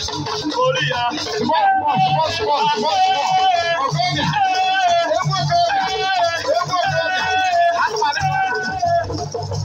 support, Korea. Support, support, support, support,